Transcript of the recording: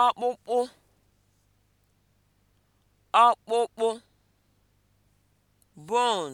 Akpụkpụ, akpụkpụ, bon